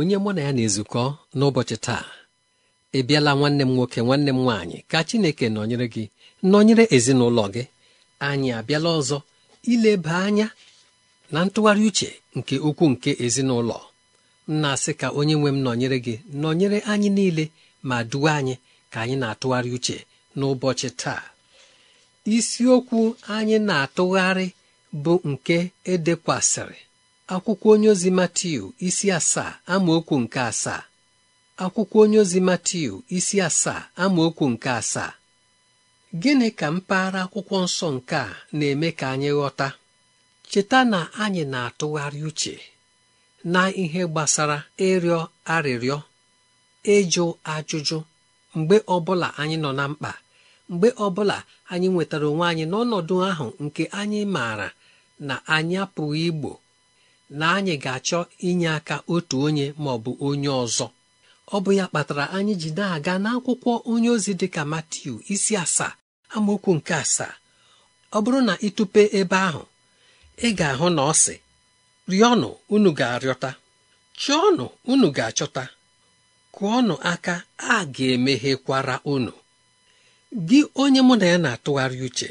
onye mụ na ya na-ezukọ n'ụbọchị taa ị bịala nwanne m nwoke nwanne m nwaanyị ka Chineke nọnyere gị nọnyere ezinụlọ gị anyị abịala ọzọ ileba anya na ntụgharị uche nke ukwu nke ezinụlọ na-asị ka onye nwe m nọnyere gị nọnyere anyị niile ma duwe anyị ka anyị na-atụgharị uche n'ụbọchị taa isiokwu anyị na-atụgharị bụ nke edekwasịrị akwụkwọ onye ozi Matiu isi asaa amaokwu nke asaa akwụkwọ onye ozi isi asaa amaokwu nke asaa gịnị ka mpaghara akwụkwọ nsọ nke a na-eme ka anyị ghọta cheta na anyị na-atụgharị uche na ihe gbasara ịrịọ arịrịọ ịjụ ajụjụ mgbe ọbụla anyị nọ na mkpa mgbe ọbụla anyị nwetara onwe anyị n'ọnọdụ ahụ nke anyị maara na anyị apụghị igbo na anyị ga-achọ inye aka otu onye ma ọ bụ onye ọzọ ọ bụ ya kpatara anyị ji na-aga n'akwụkwọ onye ozi dị ka Matiu isi asaa amaokwu nke asaa ọ bụrụ na ịtụpe ebe ahụ ị ga-ahụ na ọ sị rịọnụ unu ga-arịọta ọnụ unu ga-achọta kụọnụ aka a ga-emeghekwara unu gị onye mụ na ya na-atụgharị uche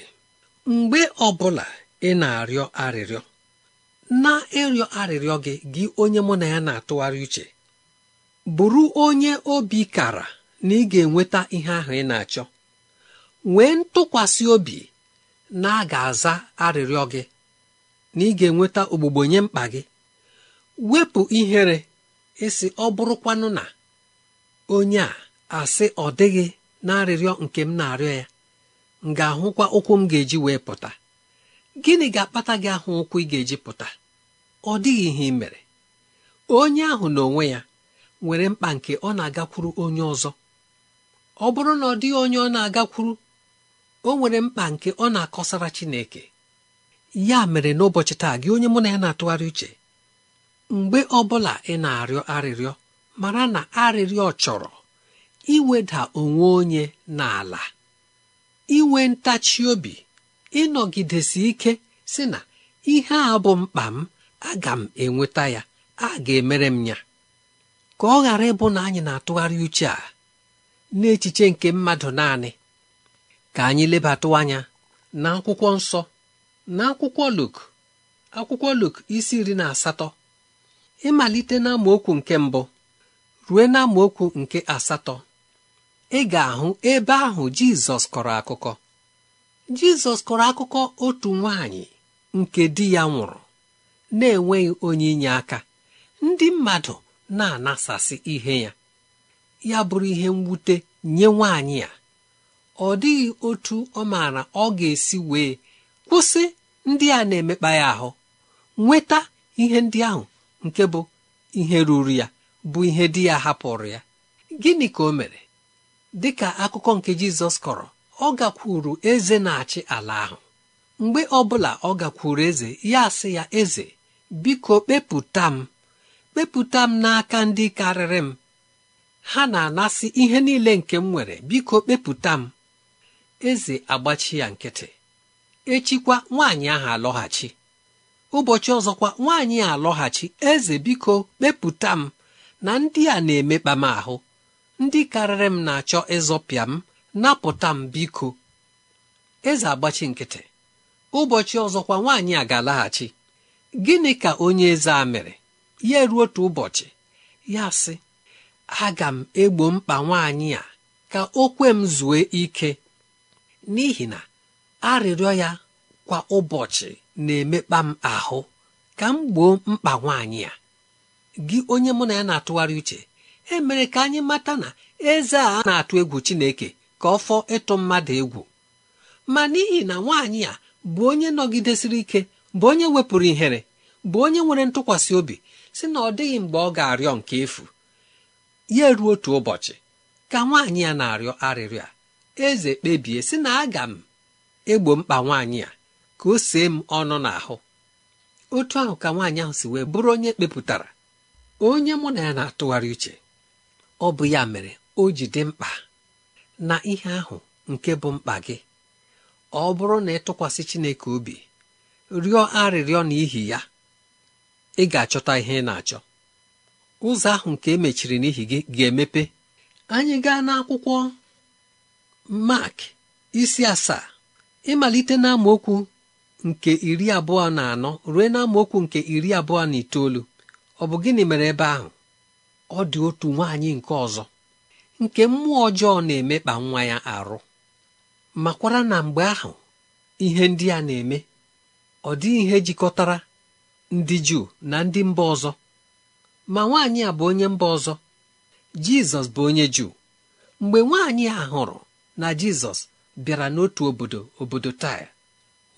mgbe ọ bụla ị na-arịọ arịrịọ na ịrịọ arịrịọ gị gị onye mụ na ya na-atụgharị uche bụrụ onye obi kara na ị ga-enweta ihe ahụ ị na-achọ wee ntụkwasị obi na a ga-aza arịrịọ gị na ị ga-enweta ogbugbo nye mkpa gị wepụ ihere ịsị ọ bụrụkwanụ na onye a asị ọ dịghị na arịrịọ nke m na-arịọ ya m ga-ahụkwa ụkwụ m ga-eji wee pụta gịnị ga-akpata gị ahụ ụkwụ ị ga-eji pụta ọ dịghị ihe ị mere onye ahụ n'onwe ya nwere mkpa nke ọ na-agakwuru onye ọzọ ọ bụrụ na ọ dịghị onye ọ na-agakwuru o nwere mkpa nke ọ na-akọsara Chineke ya mere n'ụbọchị taa gị onye mụ na ya na-atụgharị uche mgbe ọ bụla ị na-arịọ arịrịọ mara na arịrịọ chọrọ iweda onwe onye n'ala inwe ntachi obi ịnọgidesi ike si na ihe a bụ mkpa m aga m enweta ya a ga-emere m ya ka ọ ghara ịbụ na anyị na-atụgharị uche a n'echiche nke mmadụ naanị ka anyị lebatụ anya na akwụkwọ nsọ na akwụkwọ Luk akwụkwọ Luk isi iri na asatọ ịmalite n'amaokwu nke mbụ ruo okwu nke asatọ ị ga-ahụ ebe ahụ Jizọs kọrọ akụkọ jizọs kọrọ akụkọ otu nwanyị nke di ya nwụrụ na-enweghị onye inye aka ndị mmadụ na-anasasị ihe ya ya bụrụ ihe mwute nye nwaanyị ya ọ dịghị otu ọ maara ọ ga-esi wee kwụsị ndị a na-emekpa ya ahụ nweta ihe ndị ahụ nke bụ ihe ruru ya bụ ihe di ya hapụrụ ya gịnị ka o mere dị ka akụkọ nke jizọs kọrọ ọ gakwuru eze na-achị ala ahụ mgbe ọbụla ọ gakwuru eze ya sị ya eze biko kpepụta m kpepụta m n'aka ndị karịrị m ha na-anasị ihe niile nke m nwere biko kpepụta m eze agbachi ya nkịtị echikwa nwaanyị ahụ alọghachi ụbọchị ọzọkwa nwaanyị alọghachi eze biko kpepụta m na ndị a na-emekpa m ahụ ndị karịrị m na-achọ ịzọpịa m napụta m biko eze agbachi nkịtị ụbọchị kwa nwaanyị a ga-alaghachi gịnị ka onye eze a mere ya ruo otu ụbọchị ya sị aga m egbo mkpa nwaanyị a ka o kwe m zue ike n'ihi na arịrịọ ya kwa ụbọchị na-emekpa m ahụ ka m gboo mkpa nwaanyị a gị onye mụ na ya na-atụgharị uche emere ka anyị mata na eze a na-atụ egwu Chineke ka ọ fọọ ịtụ mmadụ egwu ma n'ihi na nwaanyị a bụ onye nọgidesiri ike bụ onye wepụrụ ihere bụ onye nwere ntụkwasị obi si na ọ dịghị mgbe ọ ga-arịọ nke efu ya eruo otu ụbọchị ka nwaanyị ya na-arịọ arịrịọ a eze kpebie si na aga m egbo mkpa nwaanyị a ka o see m ọnụ n'ahụ otu ahụ ka nwaanyị ahụ si wee bụrụ onye kpepụtara onye mụ na ya na-atụgharị uche ọ bụ ya mere o ji dị mkpa na ihe ahụ nke bụ mkpa gị ọ bụrụ na ị tụkwasị Chineke obi rịọ arịrịọ n'ihi ya ị ga-achọta ihe ị na-achọ ụzọ ahụ nke emechiri n'ihi gị ga-emepe anyị gaa n'akwụkwọ Mark isi asaa ịmalite na okwu nke iri abụọ na anọ ruo na okwu nke iri abụọ na itoolu ọ bụ gịnị mere ebe ahụ ọ dị otu nwaanyị nke ọzọ nke mmụọ ọjọọ na-emekpa nwa ya arụ makwara na mgbe ahụ ihe ndị a na-eme ọ dịghị ihe jikọtara ndị Juu na ndị mba ọzọ ma nwaanyị a bụ onye mba ọzọ Jizọs bụ onye Juu mgbe nwaanyị a hụrụ na Jizọs bịara n'otu obodo obodo Taya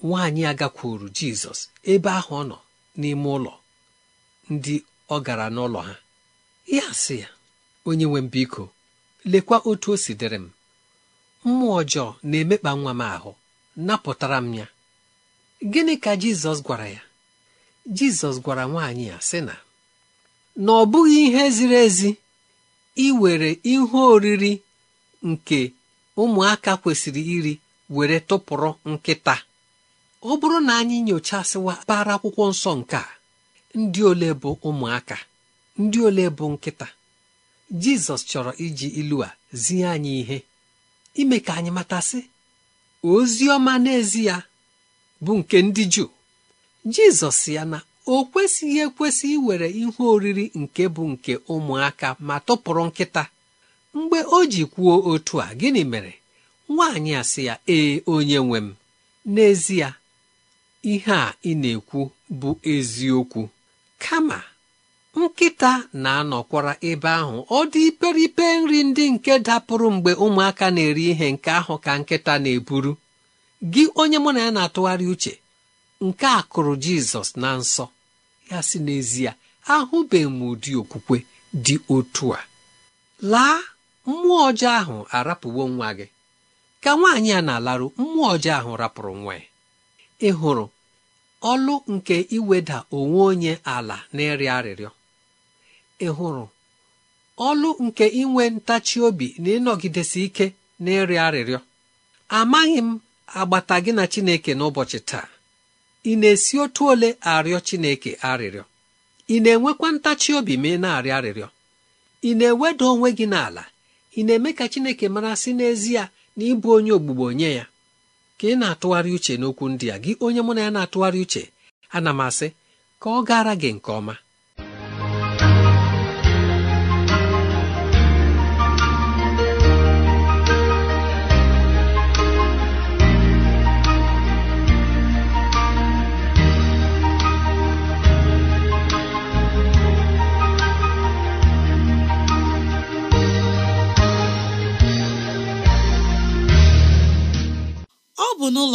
nwaanyị a gakwuru Jizọs ebe ahụ ọ nọ n'ime ụlọ ndị ọ gara n'ụlọ ha ya sị ya onye nwe mbiko. lekwa otu o si dịrị m mmụọ ọjọọ na-emekpa nwa m ahụ napụtara m ya gịnị ka jizọs gwara ya jizọs gwara nwaanyị ya sị na na ọ bụghị ihe ziri ezi iwere ihe oriri nke ụmụaka kwesịrị iri were tụpụrụ nkịta ọ bụrụ na anyị nyochasịwa bara akwụkwọ nsọ nke a ndị ole bụ ụmụaka ndị ole bụ nkịta jizọs chọrọ iji ilu a zie anyị ihe ime ka anyị matasị ozi ọma n'ezi ya bụ nke ndị juu jizọs ya na o kwesịghị ekwesị iwere ihe oriri nke bụ nke ụmụaka ma tụpụrụ nkịta mgbe o ji kwuo otu a gịnị mere nwaanyị a sị ya ee onye nwe m n'ezie ihe a ị na-ekwu bụ eziokwu kama nkịta na-anọkwara ebe ahụ ọ dị iperipe nri ndị nke dapụrụ mgbe ụmụaka na-eri ihe nke ahụ ka nkịta na-eburu gị onye mụ na ya na-atụgharị uche nke a kụrụ jizọs na nsọ ya si n'ezie ahụbeghị m ụdị okwukwe dị otu a laa mmụọ ọjọọ ahụ arapụwo nwa gị ka nwaanyị a na-alarụ mmụọ ọjọọ ahụ rapụrụ nwa ya ị hụrụ ọlụ nke iweda onwe onye ala na ịrịọ arịrịọ ị hụrụ ọlụ nke inwe ntachi obi na ịnọgidesi ike na ịrịọ arịrịọ amaghị m agbata gị na Chineke n'ụbọchị taa ị na-esi otu ole arịọ Chineke arịrịọ ị na-enwekwa ntachi obi ma ị na-arịọ arịrịọ ị na-eweda onwe gị n'ala ị na-eme ka Chineke mara sị n'ezie na ịbụ onye ogbugbo onye ya ka ị na-atụgharị uche n'okwu ndị a gị onye mụ na ya na-atụgharị uche ana m asị ka ọ gara gị nke ọma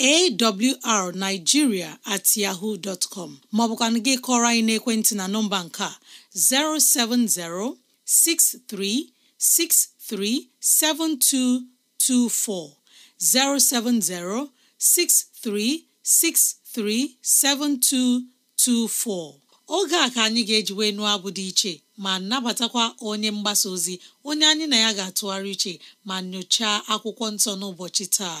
awrnigeria at yahoo dot com gị kọrọ anyị n'ekwentị na nọmba nke a 07063637224 7224 oge a ka anyị ga-ejiwe nụọ abụ dị iche ma nabatakwa onye mgbasa ozi onye anyị na ya ga-atụgharị iche ma nyochaa akwụkwọ nsọ n'ụbọchị taa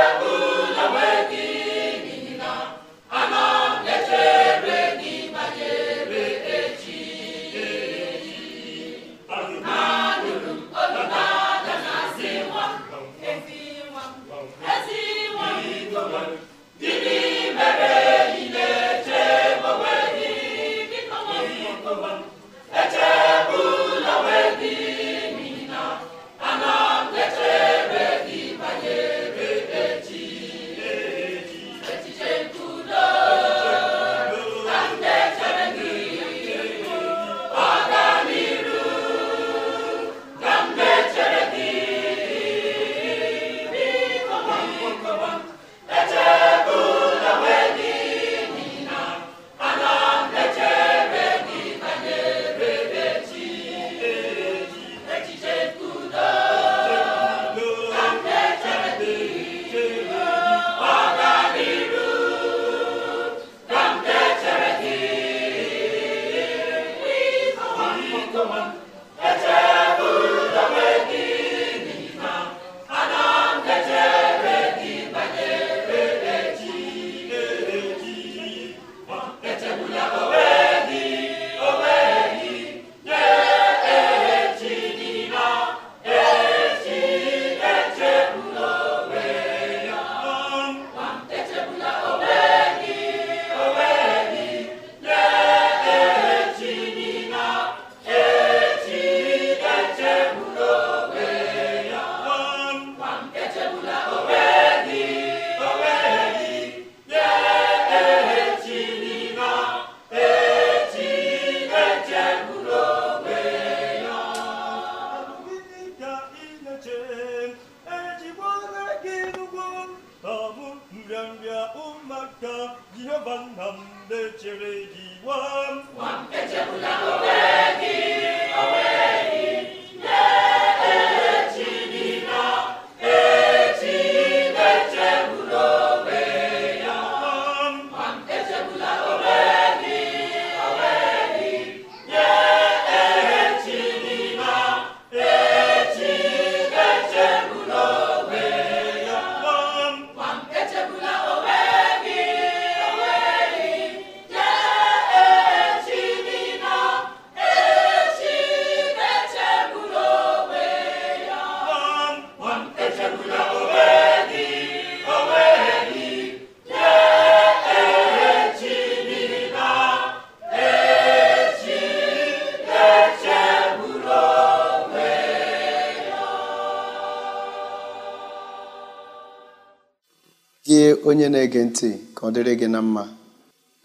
na-ege ntị ka ọ dịrị gị na mma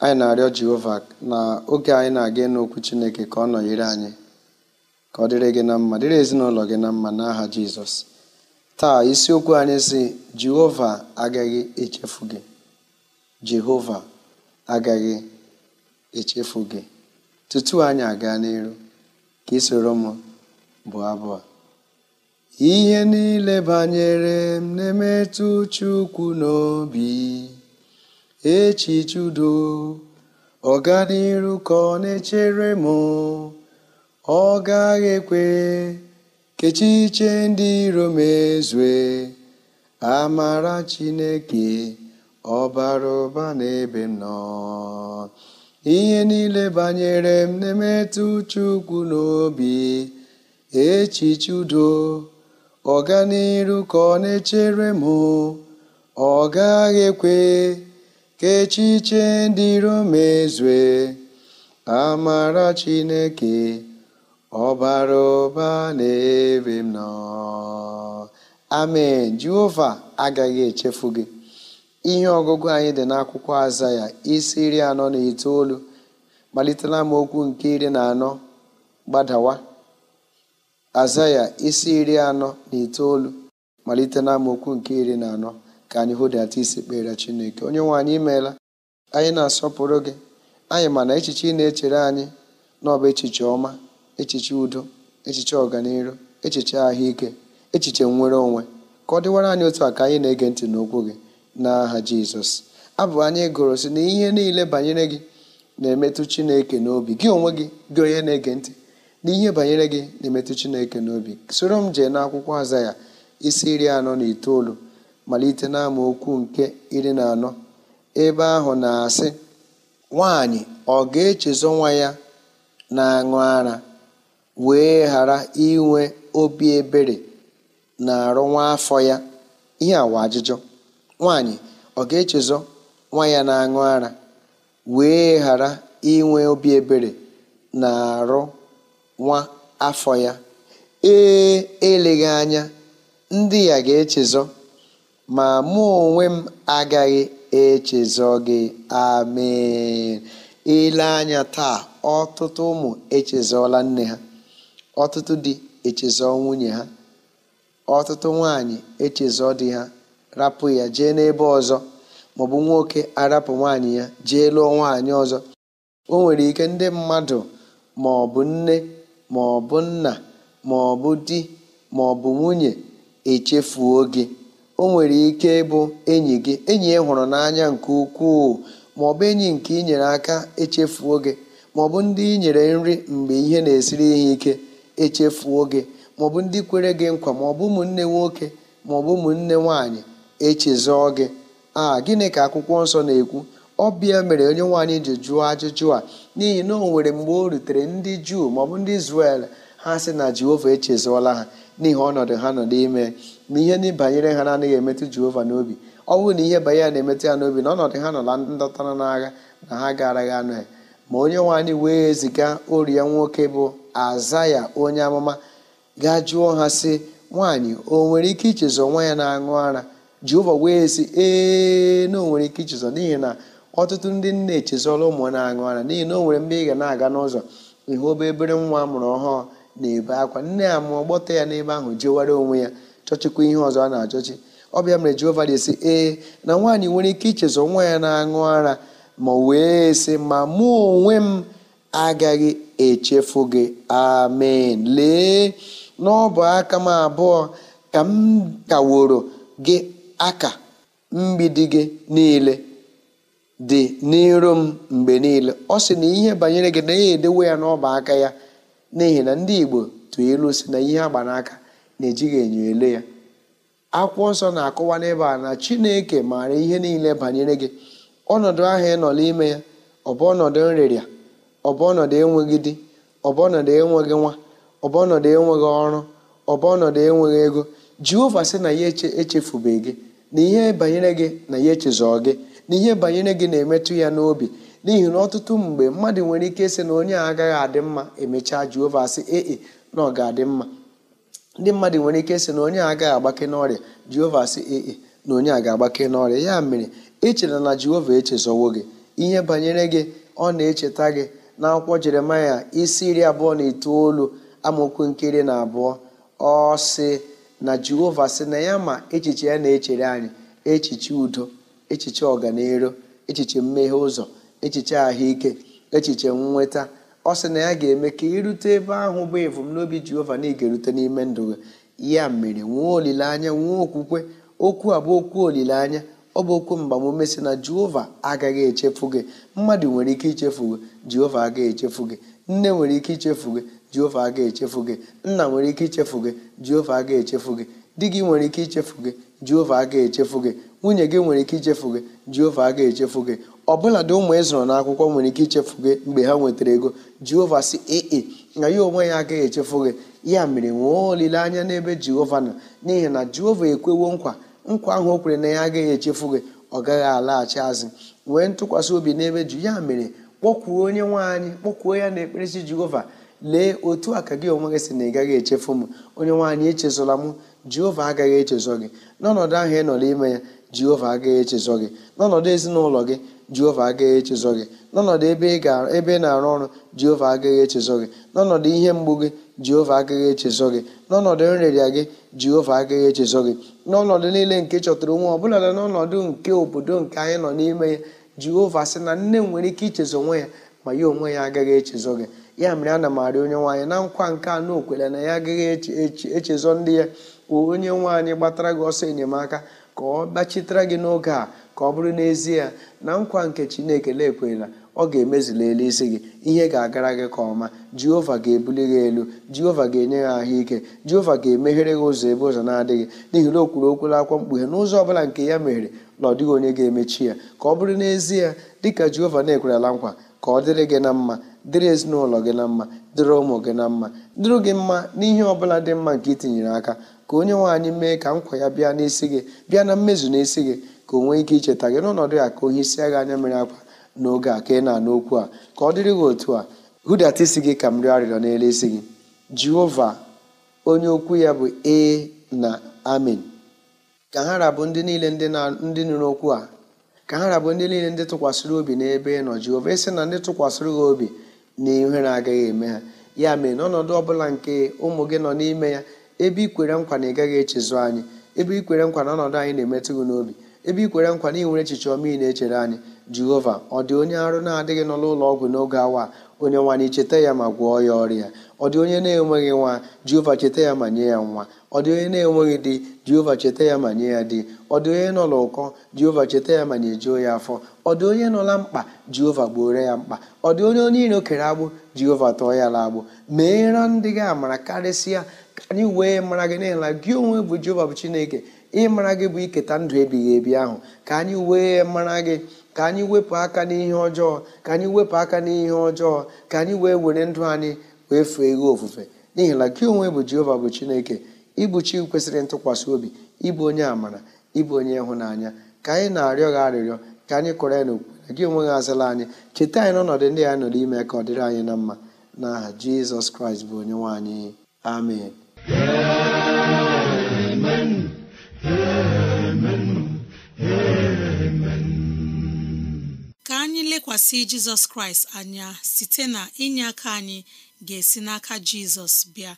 anyị na-arịọ Jehova na oge anyị na-aga ịnụ okwu Chineke ka ọ nọnyere anyị ka ọ dịrị gị na mma dịrị ezinụlọ gị na mma n'aha Jizọs taa isiokwu anyị si Jehova agaghị echefu gị Jehova agaghị echefu gị tutu anyị aga n'iru ka isoro m bụ abụọ ihe niile banyere m na-emetụ Chukwu n'obi echiche udo ọganiru ka ọ na-echere m ọ gaghị ekwe kechiche ndị iro mezue, amara Chineke ọbara ụba n'ebe m nọ ihe niile banyere m na-emetụ Chukwu n'obi echiche udo ọganiru ka ọ na-echere m ọ gaghị ekwe ka echiche ndị romney mezue amara chineke ọbara ụba na-ebe m nọ amen jehova agaghị echefu gị ihe ọgụgụ anyị dị n'akwụkwọ aza ya isi iri anọ na itoolu malitela m okwu nke iri na anọ gbadawa azaya isi iri anọ na itoolu malite na nke iri na anọ ka anyị hụdata isi kpere Chineke onye nwe anyị imeela anyị na-asọpụrụ gị anyị mana echiche ị na-echere anyị n'ọba echiche ọma echiche udo echiche ọganihu echiche ahụike echiche nwere onwe ka ọ dịwara anyị otu a ka anyị na-ege ntị n'okwu gị n'aha Jizọs abụ anyị gụrụ si na ihe niile banyere gị na-emetụ Chineke n'obi gị onwe gị gị onye na-ege ntị n'ihe banyere gị na-emetụ chineke n'obi soro m jee n'akwụkwọ aza ya isi iri anọ na itoolu malite okwu nke iri na anọ ebe ahụ na-asị nwaanyị ọ ga echezo nwa ya na-aṅụ ara wee ghara inwe obi ebere na arụ nwa afọ ya ihe awa ajụjụ nwanyị ọ ga echezo nwa ya na-aṅụ ara wee ghara inwe obi ebere na arụ nwa afọ ya ee eleghị anya ndị ya ga-echezọ ma mụ onwe m agaghị echezọ gị amen ele anya taa ọtụtụ ụmụ echezọla nne ha ọtụtụ di echezọ nwunye ha ọtụtụ nwaanyị echezọ di ha rapụ ya jee n'ebe ọzọ maọbụ nwoke arapụ nwaanyị ya jee lụọ nwaanyị ọzọ o nwere ike ndị mmadụ ma nne ma ọ bụ nna ma ọ bụ di ma ọ bụ nwunye echefuo gị o nwere ike ịbụ enyi gị enyi ị hụrụ n'anya nke ukwuu ma ọ bụ enyi nke inyere aka echefuo gị ma ọ bụ ndị ị nyere nri mgbe ihe na-esiri ihe ike echefuo gị ma ọ bụ ndị kwere gị nkwa ma ọ bụ ụmụnne nwoke ma ọ bụ ụmụnne nwanyị echezọọ gị a gịnị ka akwụkwọ nsọ na-ekwu bịa mere onye nwaanyị ji jụọ ajụjụ a n'ihi na o nwere mgbe o rutere ndị juu maọbụ ndị izrel ha sị na jehova echezọọla ha n'ihi ọnọdụ ha nọ n'ime na ihe banyere ha na-anaghị emetụ jehova n'obi ọ bụrụ na ihe banyere na-emetụ ya n'obi na ọnọdụ ha nọla ndọtara n'agha na ha gaaraghị anụ ya ma onye nwaanyị wee ziga ori nwoke bụ azaya onye amụma gaa jụọ ha si nwaanyị o nwere ike ichezọ nwa ya na-aṅụ ara jehova wee si ee na o nwere ike ichezọ n'ihi na ọtụtụ ndị nne echezọla ụmụ na-aṅụ ara n'ihi na o nwere mgbe ị ga na-aga n'ụzọ ịhụ obe ebere nwa amụrụ ọhụụ na-ebe akwa nne ya mụọ gbọta ya n'ebe ahụ jewara onwe ya chọchịkwa ihe ọzọ a na-achọchi ọbịa mere Jehova na-esi ee na nwaanyị nwere ike ichezọ nwa ya na-aṅụ ara ma wee sị ma mụ onwe m agaghị echefu gị amen lee n'ọbụ aka m abụọ ka m kaworo gị aka mgbidi gị niile dị n'iro m mgbe niile ọ sị na ihe banyere gị na ya edewe ya n'ọba aka ya n'ihi na ndị Igbo tụọ ilu si na ihe agba n'aka na-ejighị enyo ele ya akwụkwọ nsọ na akụwa n'ebe a na Chineke maara ihe niile banyere gị ọnọdụ ahụ ị nọ n'ime ya ọ bụ ọnọdụ nrịrịa ọ bụ ọnọdụ enweghị di ọ bụ ọnọdụ enweghị nwa ọ bụ ọnọdụ enweghị ọrụ ọ bụ ọnọdụ enweghị ego Jehova sị na ya echefubeghị gị na ihe banyere gị na ya echezọọ gị na ihe banyere gị na-emetụ ya n'obi n'ihi na ọtụtụ mgbe mmadụ nwere ike sị na onye a agaghị adị mma emechaa Jehova sị ee e, na ọ ga-adị mma ndị mmadụ nwere ike sị na onye a agaghị agbake n'ọrịa Jehova sị ee e, na onye a ga-agbake n'ọrịa ya mere echela na Jehova echezọwo gị ihe banyere gị ọ na-echeta gị na akwụkwọ Jeremaya isi iri abụọ na itoolu amaokwu nkiri na abụọ ọ sị na Jehova sị na ya ma echiche ya na-echere anyị echiche udo echiche ọganiru echiche mmeghe ụzọ echiche ahụike echiche nnweta ọ sị na ya ga-eme ka irute ebe ahụ bụ n'obi jehova na ga-erute n'ime ndụ ya mere nwee olileanya nwee okwukwe okwu a bụ okwu olileanya ọ bụ okwu mgbamume si na jehova agaghị echefu gị mmadụ nwere ike ichefu gị jehova agaghị echefu gị nne nwere ike ichefu gị jehova agaghị echefu gị nna nwere ike ichefu gị jehova agaghị echefu gị di gị nwere ike ichefu gị jehova aga echefu gị nwunye gị nwere ike ichefu gị jehova aga echefu gị ọbụladị ụmụ ịzụrụ akwụkwọ nwere ike ichefu gị mgbe ha nwetara ego jehova si ee na ya onwe ya agaghị echefu gị ya mere nwee olileanya n'ebe jehova nọ n'ihi na jehova ekwewo nkwa nkwa ahụ o kwere na ya agaghị echefu gị ọ gaghị alaghachi azụ nwee ntụkwasị obi n'ebe ju ya mere kpọkwuo onye nwe anyị kpọkwuo ya na ekperesi jehova lee otu a ka gị onwe gị si na ị gaghị echefu m onye nwaanyị echezọla m jehova agaghị echezọ gị n'ọnọdụ ahụ ị nọ n'ime ya jehova agaghị echezọ gị n'ọnọdụ ezinụlọ gị jehova agaghị echezọ gị n'ọnọdụ ebe ị na-arụ ọrụ jehova agaghị echezọ gị n'ọnọdụ ihe mgbu gị jehova agaghị echezọ gị n'ọnọdụ nrịrịa gị jehova agaghị echezọ gị n'ọnọdụ niile nke chọtara onwe ọbụla na n'ọnọdụ nke obodo nke anyị nọ n'ime ya jehova sị na nne m nwere ike ichezọ onwe ya ma ya onwe ya agaghị echezọ gị ya mere ana m onye nwaanyị na nkwa nke anọ na okwere na ya agaghị echezọ ndị ya onye nwaanyị gbatara gị ọsọ enyemaka ka ọ gbachitara gị n'oge a ka ọ bụrụ n'ezie na nkwa nke chineke na-ekwela ọ ga-emezili elu isi gị ihe ga-agara gị ka ọma jehova ga-ebuli gị elu jehova ga-enye gị ahụike jehova ga-emeghere gị ụzọ ebe ụzọ na-adịghị n'ihi na o kwuru okwu n'akwụkwọ mkpughe n'ụzọ ọbụla nke ya meghere na ọ dịghị onye ga-emechi ya ka ọ bụrụ n'ezie dịka jehova na-ekwerela nkwa ka ọ dịrị gị na mma dịrị ezinụlọ gị na mma dịrị ụmụ gị na mma dịrị gị mma n'ihe ọbụla dị mma nke itinyere aka ka onye nwe anyị mee ka nkwa ya bịa n'isi gị bịa na mmezu n'isi gị ka o nwee ike icheta gị n'ọnọdụ ya ka onye isi agha anya mere akwa n'oge a ka ị na-anụ okwu a ka ọ dịrị gị otu a hụdata isi gị ka m rịọ arịrịọ n'elu isi gị jehova onye okwu ya bụ e na amen ka ha rabụ ndị niile ndị nụrụ okwu a ka ha rabụ ndị niile ndị tụkwasịrị obi n'ebe ị nọ jehova esi na ndị tụkwasịrị gị obi na ihere agaghị eme ha ya mere n'ọnọdụ ọbụla nke ụmụ gị nọ n'ime ya ebe ikwere nkwa na ị gaghị echezu anyị ebe ikwere nkwa na ọnọdụ anyị na-emetụ gị n'obi ebe ikwere nkwa na ị echiche ọma ị na-echere anyị jehova ọ dị onye arụ na-adịghị nọ n'ụlọ ọgwụ n'oge awa onye nwa anyị cheta ya ma gwọọ ya ọrịa ọ dị onye na-enweghị nwa jehova cheta ya ma nye ya nwa ọ dị onye na-enweghị di jehova cheta ya ma nye ya di ọ dị onye nọla ụkọ jehova cheta ya ma nyejuo ya afọ ọ dị onye nọla mkpa jehova gbuoro ya mkpa ọ dị onye onye iro kere agbụ jehova tọọ ya la agbụ meera ndị gị amara karịsịa ka anyị wee mara gị n'ịla gị onwe bụ jehova bụ chineke ịmara gị bụ iketa ndụ ebighị ebi ahụ ka anyị wee mara gị ka anyị wepụ aka n'ihe ọjọọ ka anyị wepụ aka n'ihe ọjọọ ka anyị wee were ndụ anyị wee fee ghe ofufe n'ihi na gị onwe bụ jehova bụ chineke ịbụ chi kwesịrị ntụkwasị obi ịbụ onye amara ịbụ onye ịhụnanya ka anyị na-arịọ gị arịrịọ ka anyị kụrụ ya n'okwu gị onwe gị azala anyị cheta anyị n'ọnọdụ ndị anyị nọrọ ime ka ọ dịrị anyị na mma na aha jizọs kraịst bụ onye nwaanyị anyị amen anyị lekwasị jizọs kraịst anya site na inye aka anyị ga-esi n'aka jizọs bịa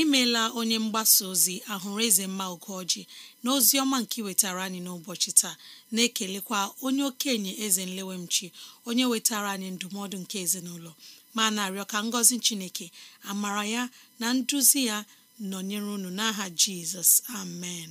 imela onye mgbasa ozi ahụrụ eze mma ugoji na ozi ọma nke wetara anyị n'ụbọchị taa na-ekelekwa onye okenye eze nlewemchi onye wetara anyị ndụmọdụ nke ezinụlọ ma na-arịọ ka ngọzi chineke amara ya na nduzi ya nọnyere unu n'aha jizọs amen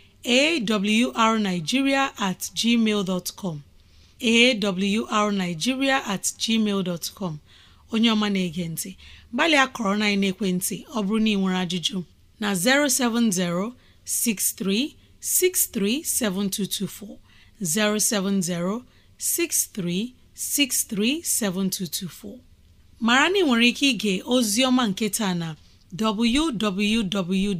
arnigiria at gmail com at gmail com onye ọma na-ege ntị gbalịa kọrọ na ekwentị ọ bụrụ na ị nwere ajụjụ na 070 7224. 070-6363-7224 mara na nwere ike ịga ozi ọma nke taa na www.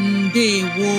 ndewo